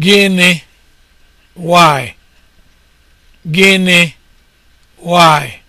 Gịnị? Why? Gịnị? Why?